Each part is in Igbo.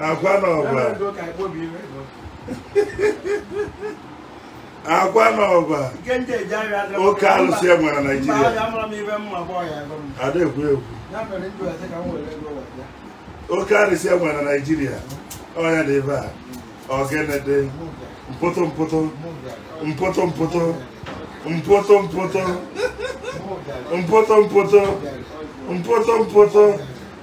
akwa na ọgba akwa na ọgba oke alụsị e nwere Naịjirịa ada ekwu ekwu oke alụsị e nwere Naịjirịa ọnya dị ebe a mpụtụ mpụtụ mpụtụ mpụtụ mpụtụ mpụtụ mpụtụ mpụtụ mpụtụ mpụtụ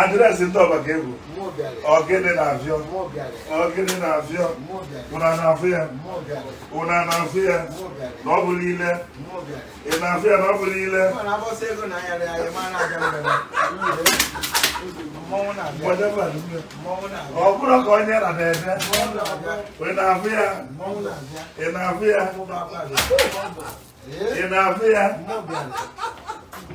adreesị ndị ọba ga-egwu ọgịnị na-abịọ ọgịnị na-abịọ ụna na-afụ ya ụna na-afụ ya na ọ bụla ile ị na-afụ ya na ọ bụla ile ọ bụrụ ka onye na na-eme ị na-afụ ya ị na-afụ ya ị na-afụ ya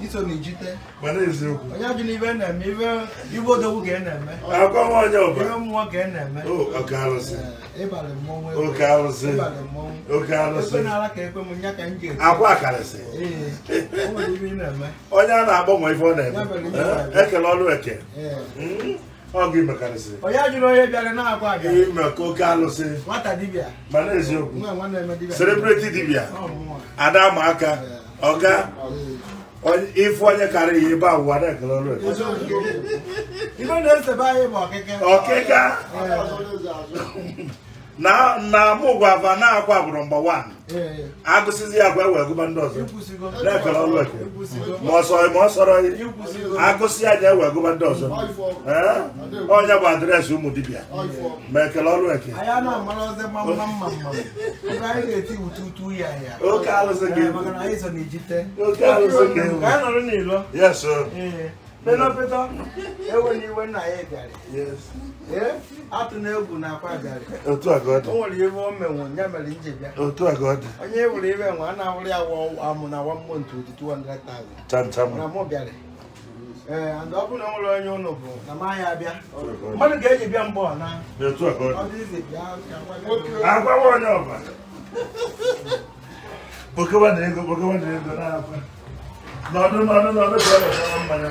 iso n'ijite onye ajụ na ibe na-eme ibe odogwu ka na-eme ibe eh, mmụọ ka eh, na-eme ịbalị mmọnwụ oke onye a na-agbanwe ife ọ na eh, ekele eke hmm? onye ajụrụ onye bịara na-agwa aga oke alụsị mana eziokwu dibịa ada ma aka ọga ife onye karịrị ebe awụwa na-ekele ọrụ ọkịka. ọkịka na na mụgwa na agwa agbụrụ mgba wan agụsizi ya agwa e gụba ndị ọzọ na-ekere ọlụ eke ma ọsọ ma ọ sọrọ agụsị ya ja ewee gụba ndị ọzọ onye bụ adreesị ụmụ dibịa ma ekele ọlụ eke oke alụsị gị oke alụsị gị Penopeta, ewe enweghị iwe na ya bịara. Ee, atụ na egwu na akwa bịara. Otu a ka nwere ya mere Otu a Onye ewere iwe nwe, a na ya amụ na one month 200,000. Cham cham. Na mụ bịara. Ee, and ọ bụrụ na ụnụ bụ na ma ya Mmadụ ga bịa mbọ Otu onye ọbụla. na ego, na ego na